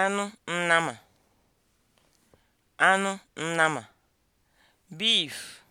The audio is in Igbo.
anụ nnama anụ nnama beef